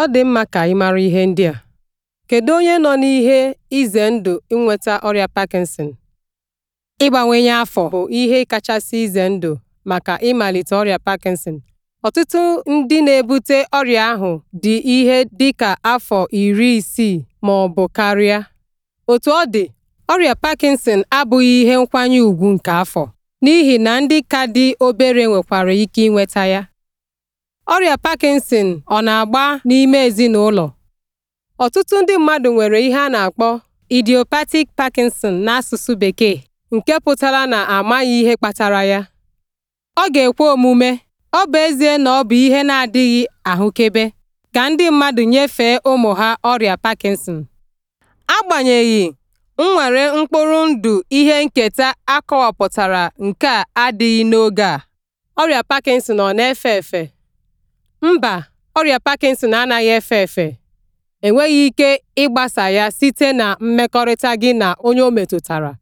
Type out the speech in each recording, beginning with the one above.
Ọ dị mma ka ị mara ihe ndị a: Kedu onye nọ n'ihe ize ndụ inweta ọrịa Parkinson? ịgbanwenye afọ bụ ihe kachasị ize ndụ maka ịmalite ọrịa Parkinson. Ọtụtụ ndị na-ebute ọrịa ahụ dị ihe dị ka afọ iri isii ma ọ bụ karịa. otu ọ dị, ọrịa Parkinson abụghị ihe nkwanye ùgwù nke afọ, n'ihi na ndị ka dị obere nwekwara ike inweta ya. Ọrịa Parkinson ọ na-agba n'ime ezinụlọ? Ọtụtụ ndị mmadụ nwere ihe a na-akpọ idiopathic Parkinson n'asụsụ Bekee, nke pụtara na amaghị ihe kpatara ya. Ọ ga-ekwe omume, ọ bụ ezie na ọ bụ ihe na-adịghị ahụkebe, ka ndị mmadụ nyefee ụmụ ha ọrịa Parkinson. Agbanyeghị, nnwere mkpụrụ ndụ ihe nketa akọwapụtara nke a adịghị n'oge a, ọrịa Parkinson ọ na-efe efe? Mba, ọrịa Parkinson anaghị efe efe, enweghị ike ịgbasa ya site na mmekọrịta gị na onye o metụtara.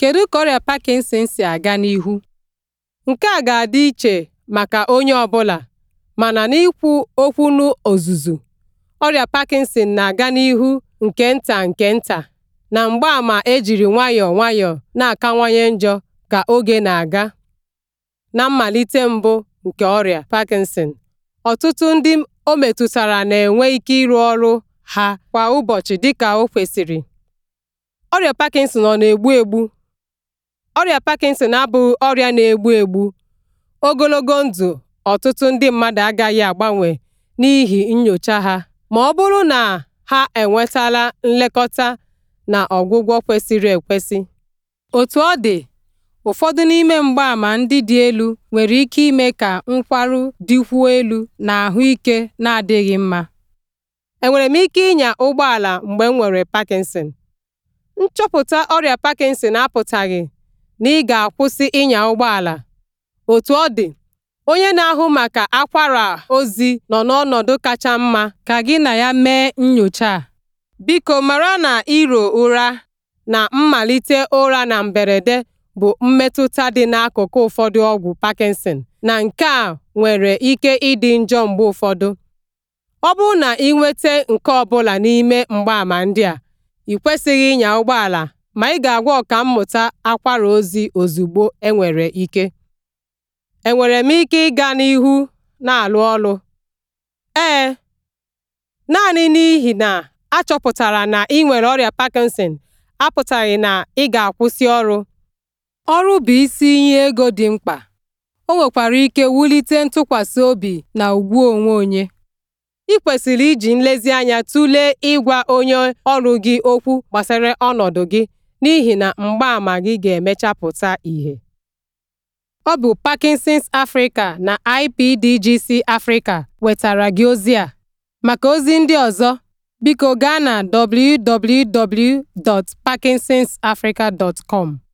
Kedu ka ọrịa Parkinson si aga n'ihu? Nke a ga-adị iche maka onye ọ bụla, mana n'ikwu okwu n'ozuzu, ọrịa Parkinson na-aga n'ihu nke nta nke nta, na mgbaama ejiri nwayọọ nwayọọ na-akawanye njọ ka oge na-aga. Na mmalite mbụ nke ọrịa Parkinson ọtụtụ ndị o metụtara na-enwe ike ịrụ ọrụ ha kwa ụbọchị dịka o kwesịrị. Ọrịa Parkinson ọ na-egbu egbu? Ọrịa Parkinson abụghị ọrịa na-egbu egbu. Ogologo ndụ ọtụtụ ndị mmadụ agaghị agbanwe n'ihi nyocha ha ma ọ bụrụ na ha enwetala nlekọta na ọgwụgwọ kwesịrị ekwesị. otu ọ dị, ụfọdụ n'ime mgbaàmà ndị dị elu nwere ike ime ka nkwarụ dịkwuo elu na ahụike na-adịghị mma enwere m ike ịnya ụgbọala mgbe m nwere parkinson nchọpụta ọrịa parkinson apụtaghị na ị ga-akwụsị ịnya ụgbọala. otu otú ọ dị onye na-ahụ maka akwara ozi nọ n'ọnọdụ kacha mma ka gị na ya mee nyocha a biko mara na iro ụra na mmalite ụra na mberede bụ mmetụta dị n'akụkụ ụfọdụ ọgwụ Parkinson na nke a nwere ike ịdị njọ mgbe ụfọdụ. Ọ bụrụ na ị nweta nke ọ bụla n'ime mgbaàmà ndị a, ị kwesịghị ịnya ụgbọala ma ị ga-agwa mmụta akwara ozi ozugbo enwere ike. Enwere m ike ịga n'ihu na alụ ọrụ? Ee, naanị n'ihi na achọpụtara na ị nwere ọrịa Parkinson apụtaghị na ị ga-akwụsị ọrụ. ọrụ bụ isi inye ego dị mkpa o nwekwara ike wulite ntụkwasị obi na ugwu onwe onye ị kwesịrị iji nlezianya tụlee ịgwa onye ọrụ gị okwu gbasara ọnọdụ gị n'ihi na mgbaàmà gị ga emechapụta pụta ìhè ọ bụ Parkinson's Africa na IPDGC Africa wetara gị ozi a maka ozi ndị ọzọ biko gaa na www.parkinsonsafrica.com